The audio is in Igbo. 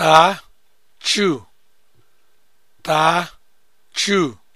taa chu taa chu